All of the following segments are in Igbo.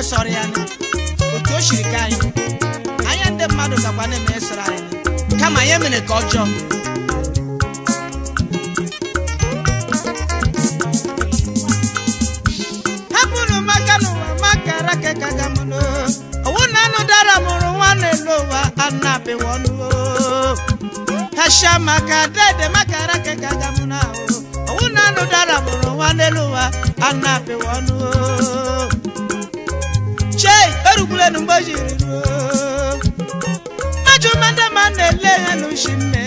na-eme sọrọ ya otu o ka anyị anya mmadụ gakwa na-eme sọrọ kama ya mere ka ọ hapụrụ maka n'ụwa maka rake na anụ dara mụrụ nwa e na ụwa anụ ọnụ ya nu jiri ruo mmajụ na-ele ya n'ushi mme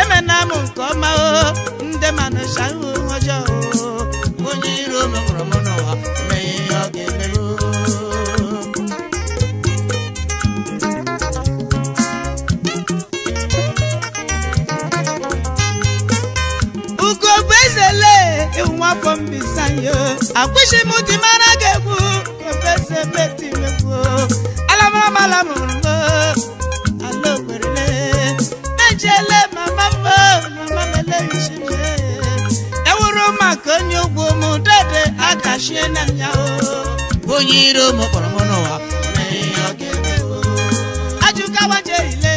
emena nke ọma o ndị ihu afọ mbisanye akwụsị m dị mara gị egwu kọfesi ebe tinyegwu alamarabala m rụgo ala okwerele mejele mama m mama mele ichebe ewuru maka onye ugwu m dede akachie na ya onye iro m kpọrọ m n'ụwa ajụkawa jerile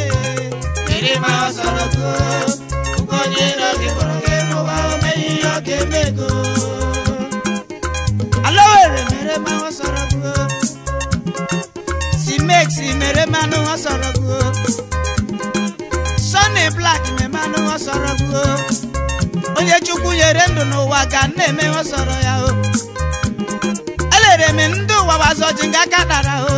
ịrịma ọsọrọ goo onye iro gị kpọrọ gị kémego. Alówó èrè mèrè máa wọ́n sọ̀rọ̀ gbó. Simeksi mèrè máa ní wọ́n sọ̀rọ̀ gbó. Sunny Black mèrè máa ní wọ́n sọ̀rọ̀ gbó. Onye Chukwu nyere ndụ n'ụwa ka nna eme wọ́n sọ̀rọ̀ ya o. Elere m ndị ụwa wazọji nga ka dara o.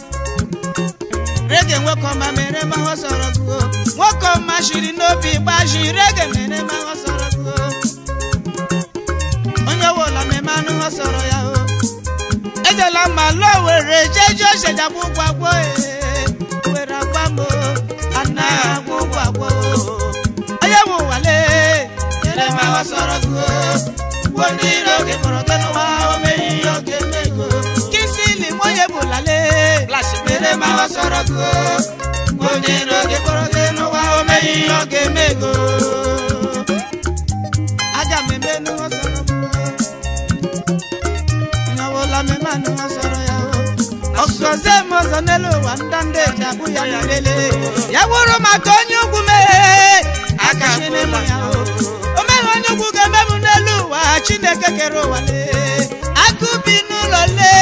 rege nwoke ọma mere ma ọ sọrọ gụọ nwoke ọma shiri n'obi gbaji rege mere ma ọ sọrọ gụọ onye wụlọ meme anụ ọ ya o ejela mma lụọ were jeje osedagbu ụgwọ agwọ e. were agwa m ana agwọ ụgwọ agwọ onye nwe ụwale mere ma ọ sọrọ gụọ ndị iro mụrụ tanụwa ome ma o sọ̀rọ̀ ko gbòde lóge kọrọdé ló wá o mẹyìn lóge mẹgo. ajá mi bẹ ni wọn sọ̀rọ̀ ko ìnáwó lamẹ má ni wọn sọ̀rọ̀ yà o. ọ̀sọ̀ ṣe mo sọ nílò wà ń dáńdé ìjàkú yàrá lélẹ̀. yàwòrán ma tó nyúkú mẹ́ àkàṣe ní mọ̀ yà o. o mẹ́wàá nyúkú kẹ́ mẹ́mu nílùú wà chineke kẹrù wà lé. akúbi nù lọ lé.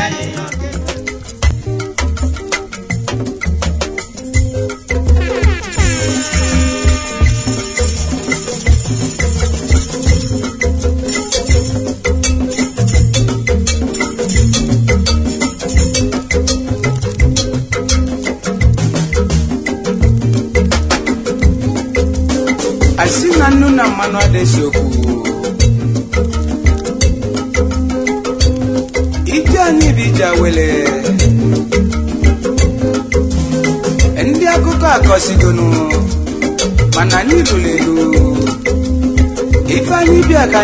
Adéṣokù. Ìjà níbi ìjà wẹlẹ̀. Ndị akụkọ akọsigonu mana anyị lụrụ elu. Ife anyị bịa ka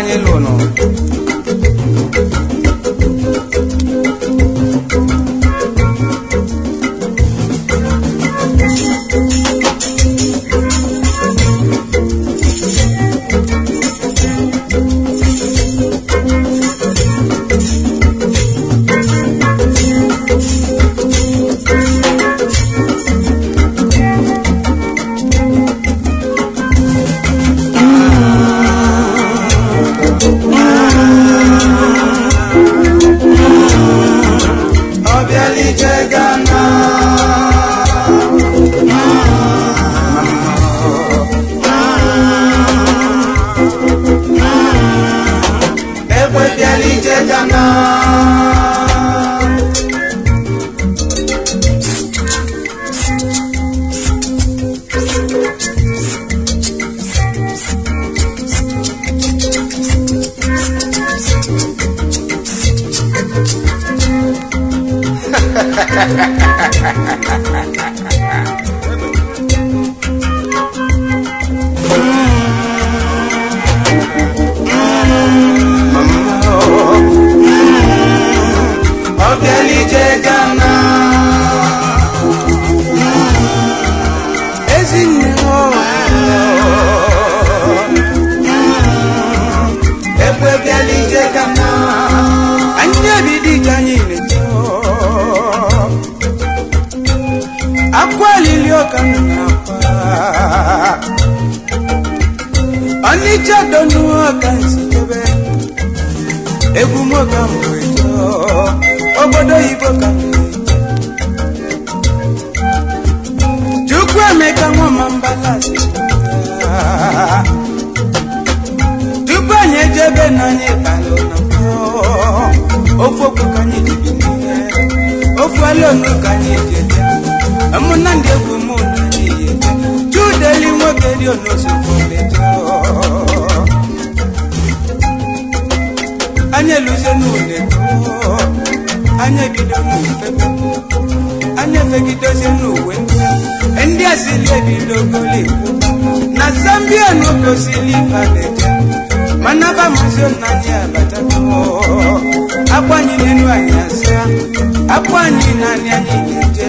akpụ anyị na anyị anyị ga-eje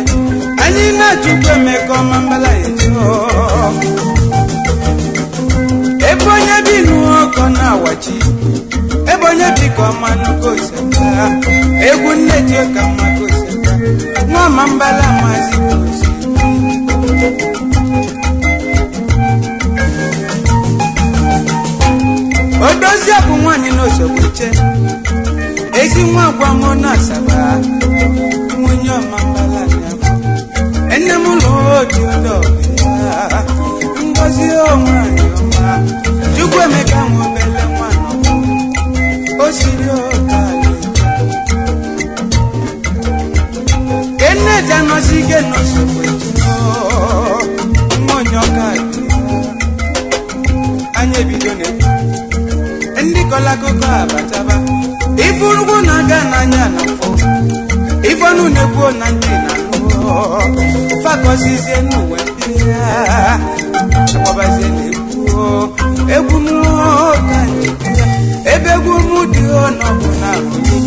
anyị na-achụkwa emeka ọma mbala eje ebe onye bi n'ụkọ na-awachi ebe onye bi ka ọma nnukwu oseta egwu nne ji ka mma ka nwa n'ọma mbala maazị ozi odozie bụ nwaanyị n'osogbu che ezi nwa agwa mụ na asaba mambala nyama ene mulodi ndobela ngozi omwanyoma chukwu emeka nwobele mwana osiri okali keneti anọsike nọsokwetuno mmonyokali anya ebido na ndị kọlakụkọ abataba ifurukwu na-aga n'anya na mfọ onu na-egbuo na ndị na-ahụ fakọzizie n'ụwa ndị ya akpọbazie na-egbuo egwu m ebe egwu m dị ọ na ahụ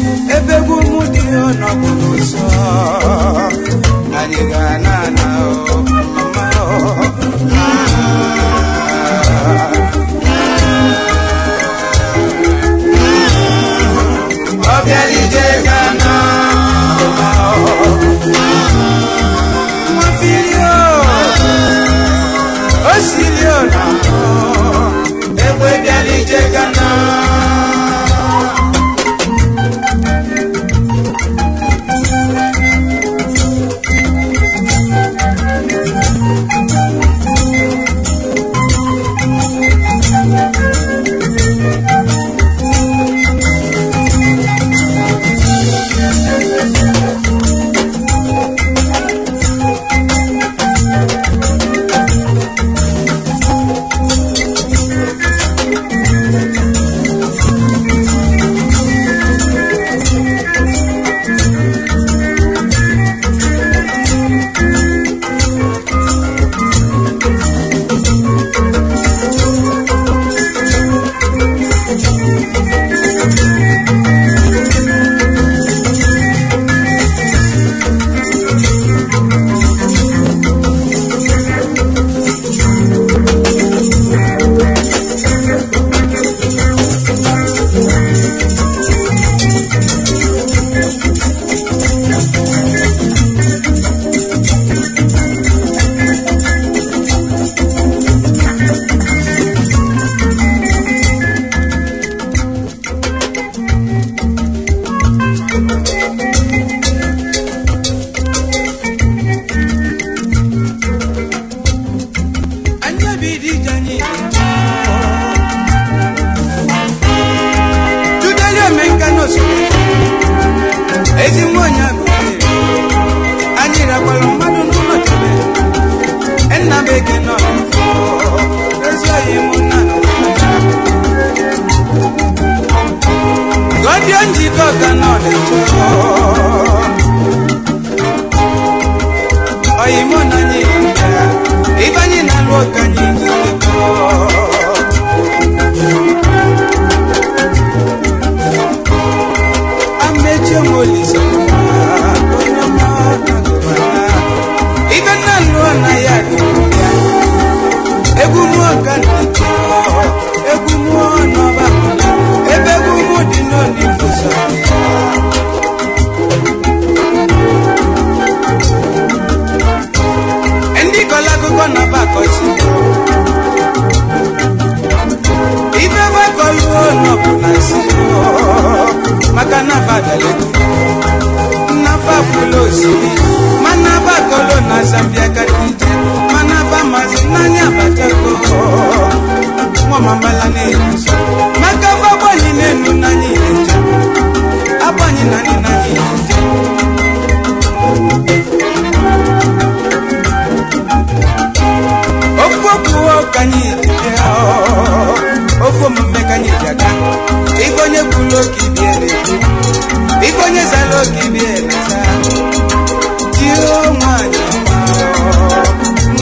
Chemolisa. maka nafa daleki nafa fulosini manafa kolo na zambia katije manafa mazinanya batako ngomambala nebiso makafa bwani nenu nanyineja abwani nani nanyineja okwokuwa okanyitijeo oh. ofe omume ka anyị ji aga ife onye kwuru oke ibie na-ekwu ife onye zara oke ibie na-aza jio nwanyị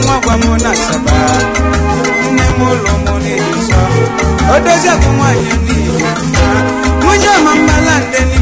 nwa gwa m na asaba nne m ụlọ m n'ịdị nsọ odozi akụ nwanyị n'ihi nwunye ọma mmala ndị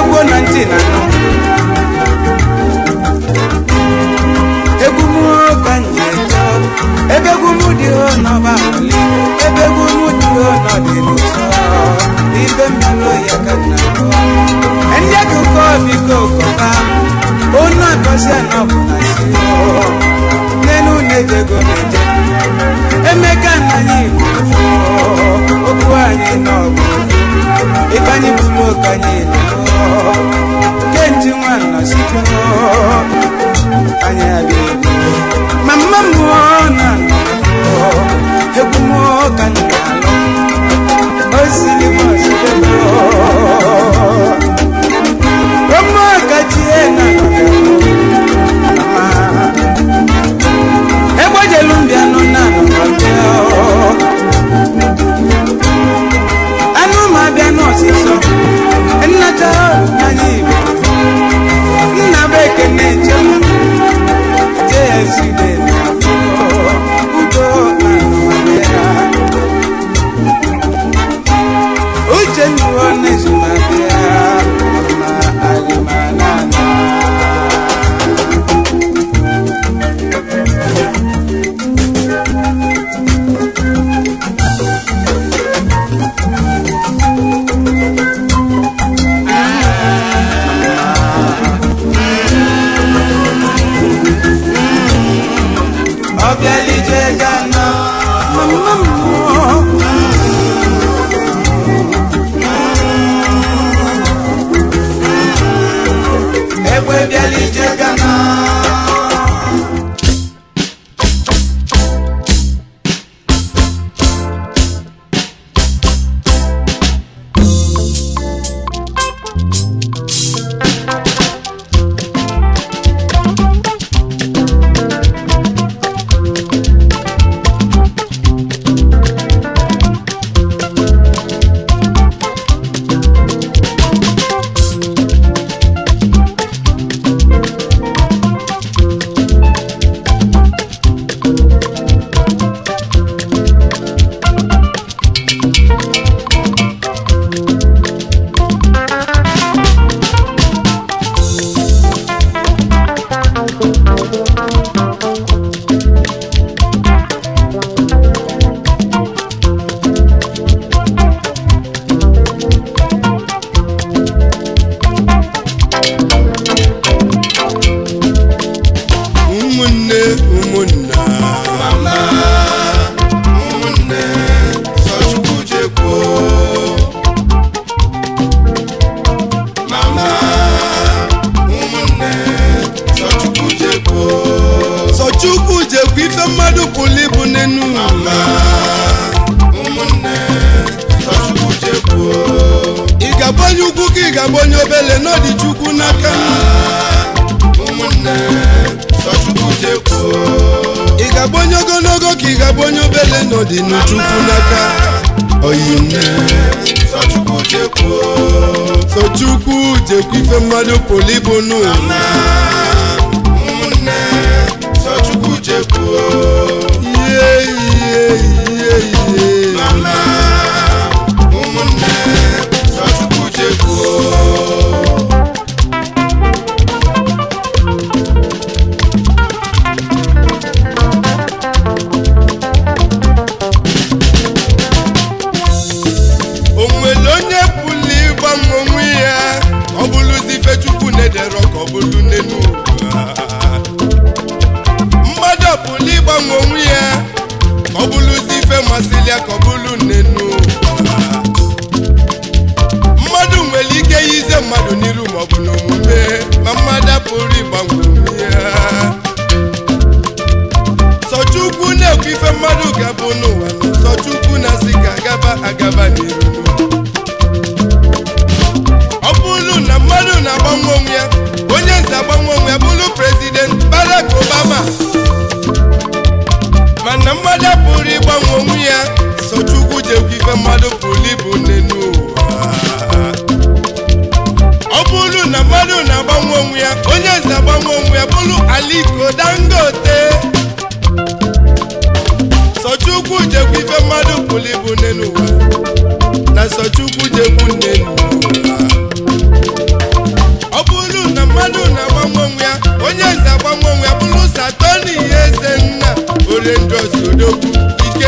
egwu na ntị na anọ egwu m ebe egwu m dị ho n'ọba ebe egwu m dị ho n'ọdịlị ụtọ ibe mmanụ ya ka na ndị akụkọ biko kọba onu akọsi anọbụla si n'enu na ego na-eje emeka na anyị igbo okwu anyị n'ọbụ ifeanyị anyị nke nji nwanna site Esse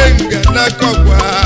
ike nga na kọkwa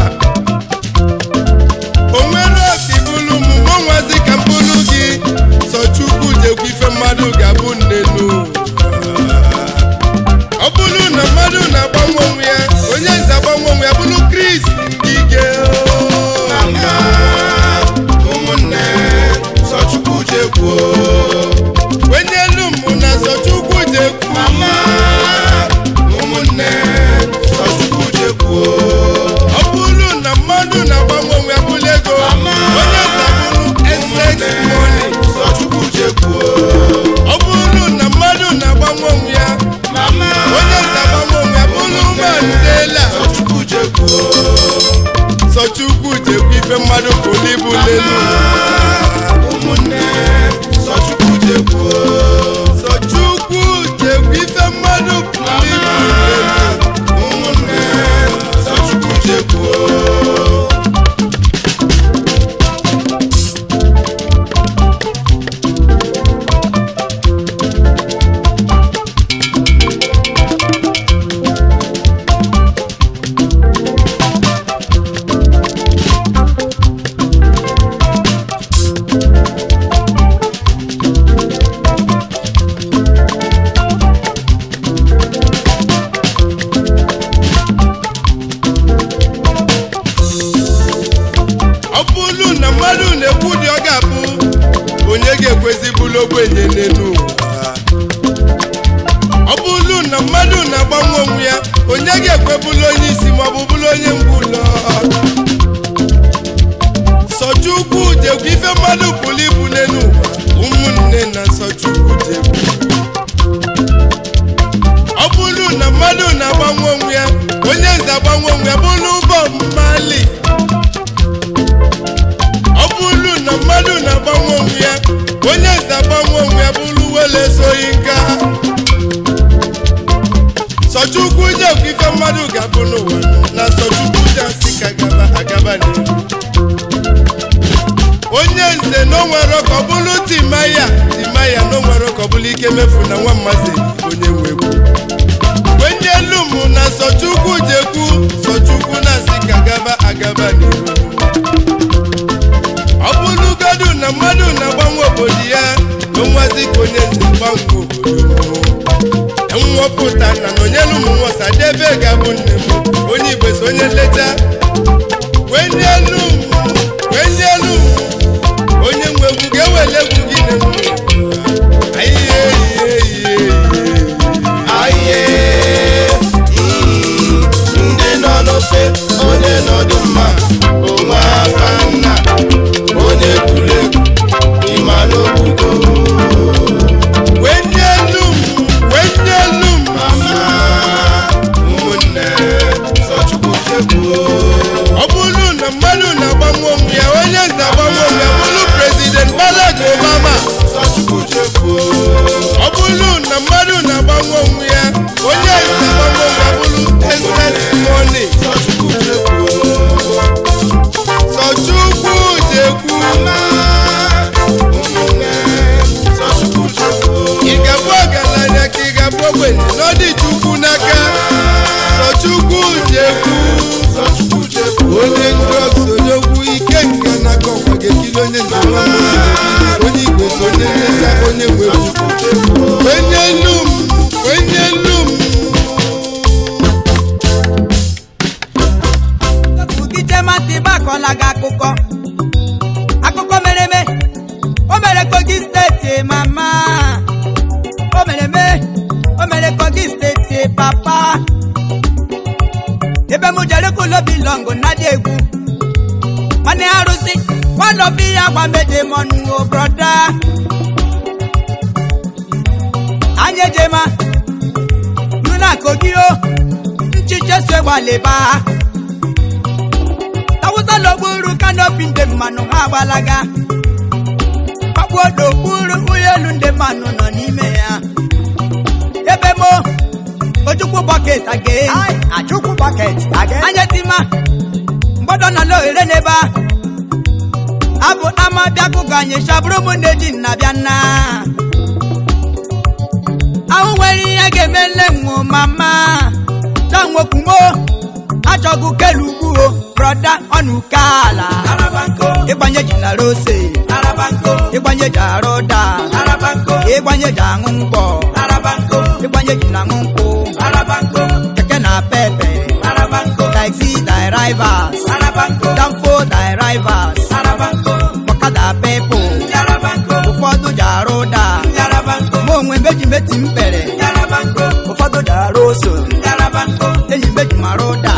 ga emefu na nwa mmazi onye nwegwu wenye elu mụ na Sọchukwu jekwu Sọchukwu na-asị ka gaba agaba n'iru ọ bụrụgodu na mmadụ na-agbanwe obodo ya onwazi ka onye nze gbanwe obodo m nwọpụta na na onyelu ụmụnwosadebe ga-abụ nne m onye Igbo so onye nleta ogbenye n'ọdị chukwu n'aka sochukwu jekwu onye onye sonyekwu ike nke na-akọ nwa ga-ekiri onye njem onye igwe sonye nleta onye nwe obi ya gbamedemọnuo oh broda anya ejema nuna kogio oh. nchicheso gbalịba tawụsa n'okpuru kanopi ndị mmanụ ha agbalaga kpakpuodo okpuru ụlọelu ndị mmanụ nọ n'ime ha. ebe mo oh, ojukwu bọket aga bọket aga anya a abụ ama kụkọ anyị chabụrụ ụmụnne ji nna bịa nna ahụ nwere ihe ga-eme nne nwụ mama chanwokwumo achọgụ kelu ugbuo brọda ọnụke ala ịgbanye rose ịgbanye ji arụ ụda ịgbanye ji aṅụ mgbọ ịgbanye ji na aṅụ keke na pepe taxi danfo onwe mejimeti m kpere ụfọdụ dara oso enyi mejimara ụda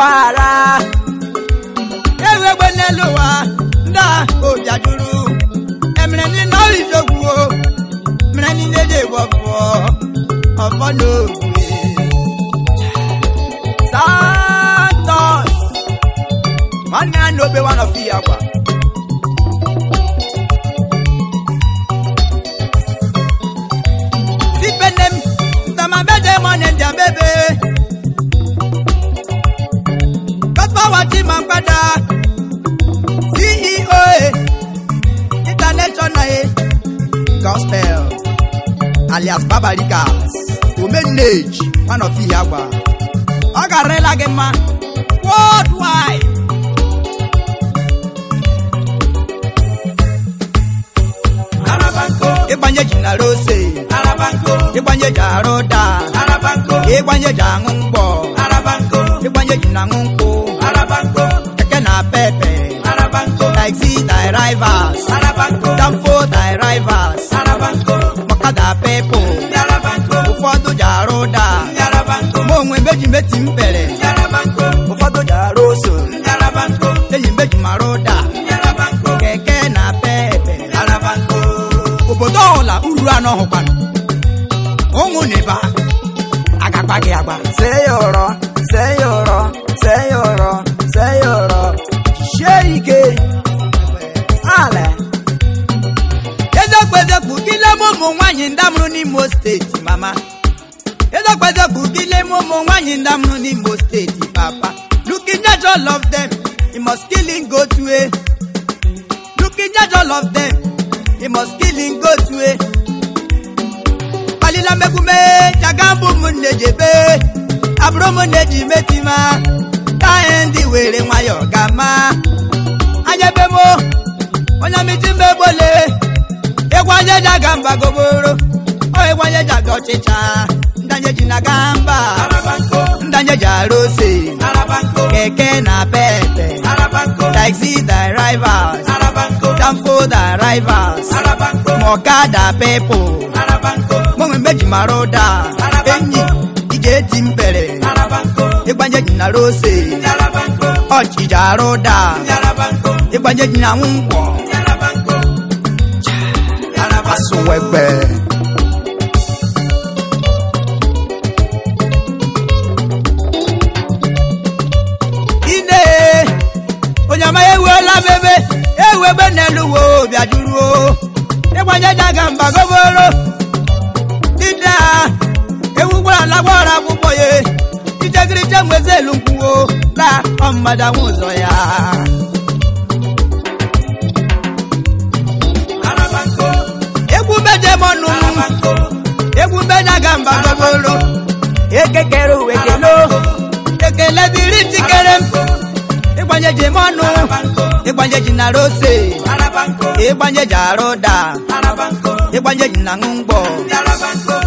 para ewegbe n'elu ụwa ndị a obi ajụrụ emere ndị nọrọ idogwu o mere ndị ndị dị ọbụọ santos nwanne ya na obe one of ya gwa sipe nne m ndamabede mọ na ndịa bebe Power ti máa padà CEO international gospel alias babarikas omenage one of the ọ ga Gemma, worldwide. ịgbanyeji na rose ịgbanyeji arụ Jaroda, ịgbanyeji aṅụ mgbọ ịgbanyeji na aṅụ nkwụ Arabanco. Keke na pepe. Arabanco. Taxi thy rivals. Arabanco. Danfo thy rivals. Arabanco. Makada pepo. Arabanco. Ụfọdụ ji arụ daa. Arabanco. Ma onwe meji meti m bere. Arabanco. Ụfọdụ ji arụ oso. Arabanco. Eyi meji marụ daa. Arabanco. Keke na pepe. Arabanco. Obodo ọla uru anọ hụkwanụ. Father Budile Momo Wanyi Ndamnu ndamu n'Imo Steeti Papa. Looking at all of them, he must kill him go to a. Looking at all of them, he must kill him go to a. Palila Megume, Chagambu Mundejebe, Abromoneji Metima, Kaendi Wele Mayo Gama, Anyabemo, Onyamitimebole, Ewanyaja Gamba Goboro, Ewanyaja Gochicha. ndanjeji na gamba ndanjeji arose keke na pepe taxi drivers danfo drivers mọ̀kadà people mọ̀mọ́ méjì maroda enyi ìjẹ́ ti ń bẹ̀rẹ̀ igbanjeji na rose ọ̀chìjà roda igbanjeji na ń wọ̀ gobe n'elu uwe bịa duruo ịgbanye daga mba goboro dida ewu gwara alagwara akwụkwọ ya ichegirije mwezi elu nkwuo na ọmmada nwụzọ ya egwu bedemọnụ egwu bedaga mba goboro ekekere uwe kelo ekele dịrị tikere m igbanyeji mọnụ igbanyeji na rose igbanyeji arụda igbanyeji na ṅụngbọ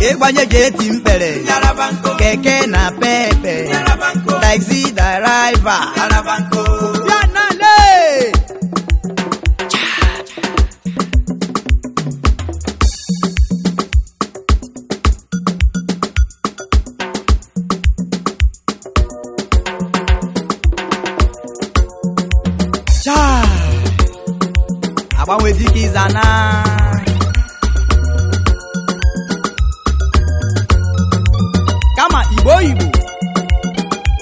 igbanyeji eti mkpere keke na pepe taxi driver gbanwe ịza na kama igbo oyibo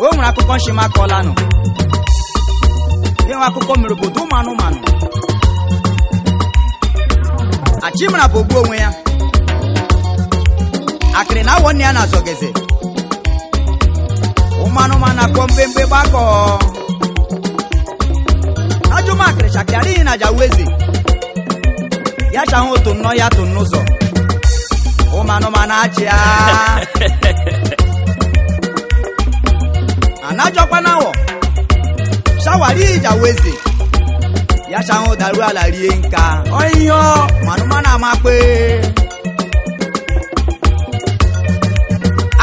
o nwere akụkọ nshima kọlanụ enwe akụkọ mere obodo ụmụ anụmanụ achimara bụ ogbu onwe ya akịrị na awọ ya na-azọgeze ụmụ anụmanụ akpọ mgbemgbe gbakọọ ajụmakịrị chakịrị adịghị na jaweze ya cha ahụ otu nnọọ ya tụ n'ụzọ ụmụ anụmanụ achị a. anajọkwa na awọ shawari ija weze ya cha ahụ ala rie nka ọihe manụmanụ amakpe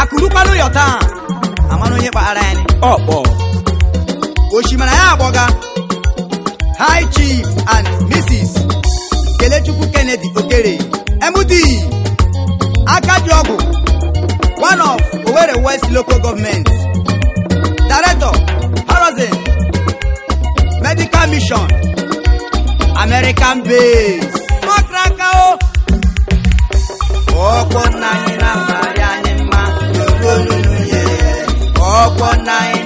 akụrụkwanụ yọ taa amanụ onye kpaghara oh, ya ọkpọ osimiri ya agbọga high chief and mrs Elechukwu Kennedy Okere MD Akadiogu one of Owerri West local government Director Horizon Medical Mission American base. Mọkraka o. na-amarị anyị mma ye. Ọkwọ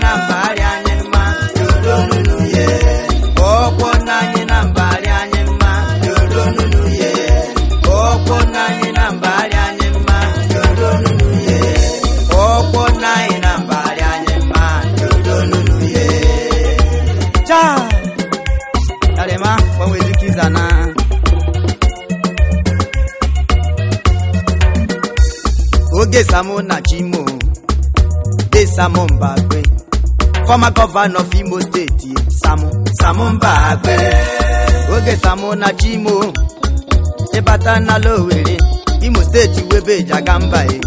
Samo Najimo, Desamo Mbagwe, former governor of Imo State, Samo, Samo Mbagwe, Oge Samo Najimo, Ebata na Lowere, Imo State webe Jagamba e.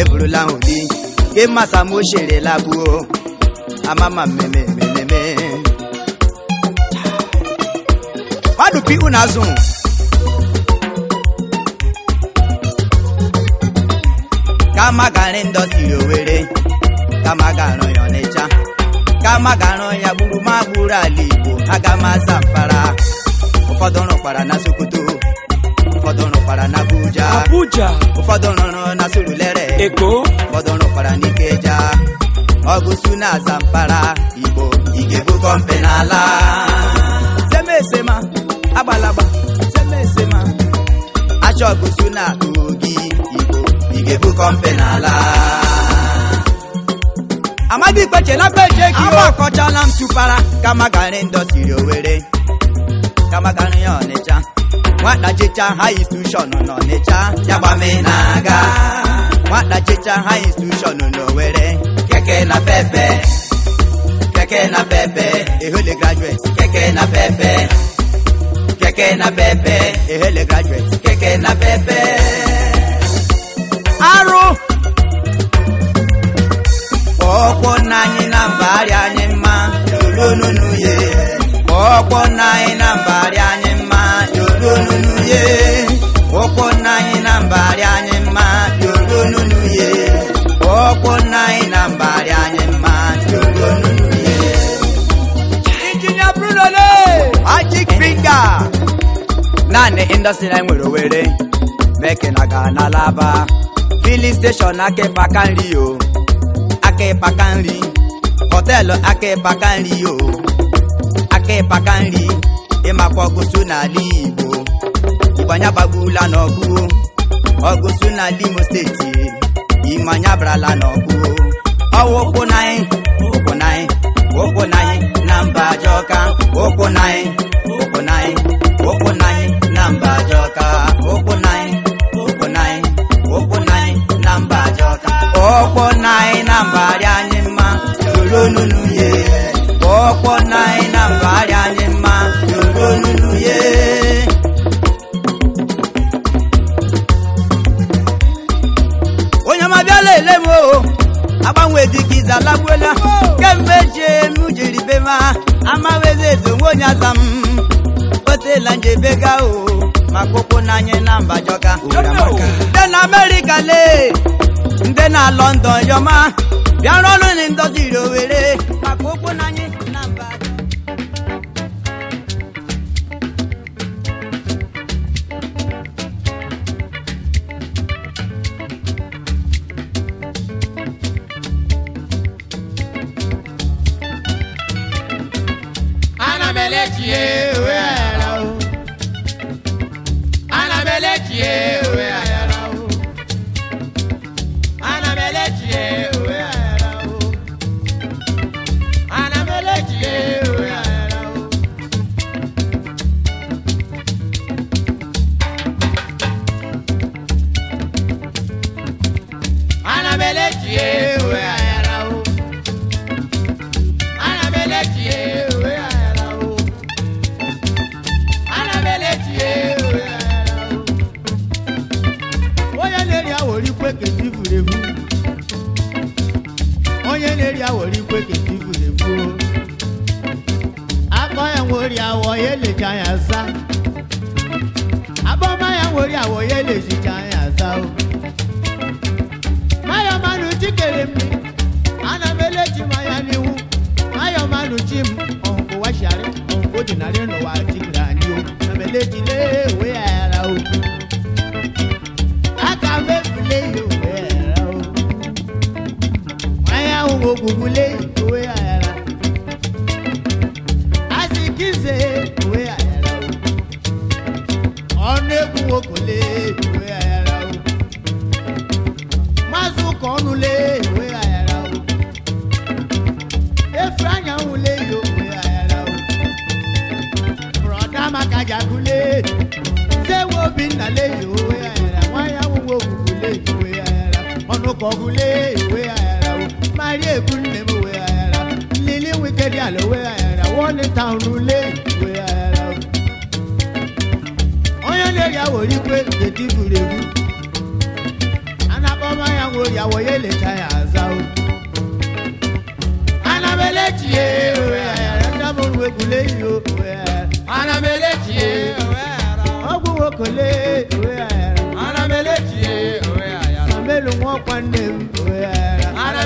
Eburula odi, ke masamo shere labu o, oh. amama meme meme meme. Wadu pi unazun. kama gara owere Owerri kama gara ya Ọnịcha kama gara ya gburumagburu ala Igbo agama zamfara asa mfara ụfọdụ rụkwara na Sokoto ụfọdụ rụkwara na Abuja ụfọdụ rụrụ na Surulere Eko ụfọdụ rụkwara na Ikeja ọgụsu na zamfara Igbo ị ga n'ala agbalagba semesema na atụ ga-ebu kọmpeni ala amadi kpeche na peje ki o akọchala m tụpara kamagari ndọsiri owere kamagari ya ọnịcha nwata chicha ha institushọn n'ọnịcha yagbame na-aga nwata chicha ha institushọn n'owere keke na pepe keke na pepe ehele graduate keke na pepe keke na pepe ehele graduate keke na pepe arụ kpọọkpọ nna na mbagharị anyị mma yolununuye kpọọkpọ nna na mbagharị anyị mma yolununuye na mbagharị anyị mma yolununuye kpọọkpọ na mbagharị anyị mma nwere filin steshọn aka ịkpaka nri o aka ịkpaka nri họteelụ aka ịkpaka nri o aka ịkpaka nri ịmakwa ọgụsụ n'ala Igbo ịgbanya gbagbula n'ọgụ ọgụsụ na limu steeti ịmanya e. brala n'ọgụ ọgụ. ụkwụ na na anyị ụkwụ na anyị na mba Ajọka ụkwụ na anyị ye ọkpọ anyị na mba onye ma bịala ele o agbanwe dịka ize kemgbe jie m jiri be ma amaweze ezo onwe onye aza m kpetela gaa o ma ụkwụ na anyị na mba jọga ndị na amerịka lee ndị na lọndọn yọma bịara ọnụ na ndọzi Owerri maka ana eh, eh, eh, oh. ana oh. yawo ye le shi ka ya sao mayo manu chikere mi ana mele chimaya niwu mayo manu chim onko wa shari onko dinari no wa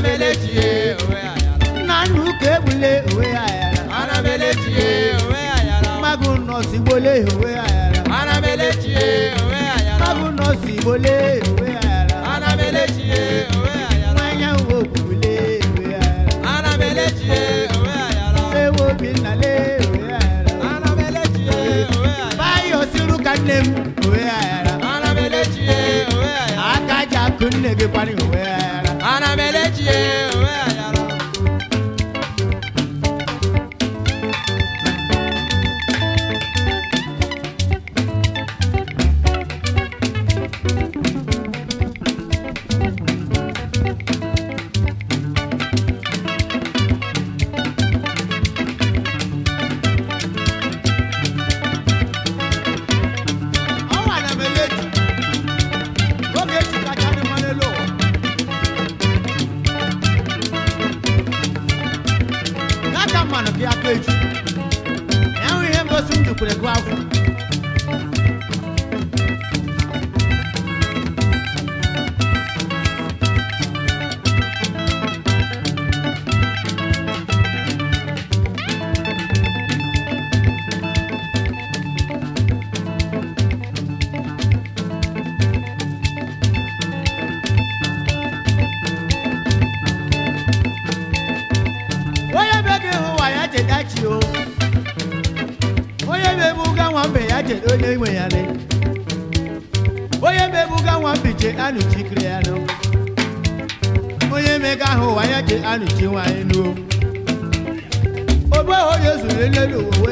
anabeleji ye owe ayara. nanu kebule owe ayara. anabeleji ye owe ayara. magun nọọsi wọlé owe ayara. anabeleji ye owe ayara. magun nọọsi wọlé owe ayara. anabeleji ye owe ayara. wáyà wo kule owe ayara. anabeleji ye owe ayara. sewo mi nalé owe ayara. anabeleji ye owe ayara. bayo sírú ka nẹ́mu owe ayara. anabeleji ye owe ayara. akaja kun nege pani owe ayara. melhor de eu nanu tiwa inu o. Obo Yesu lele lowo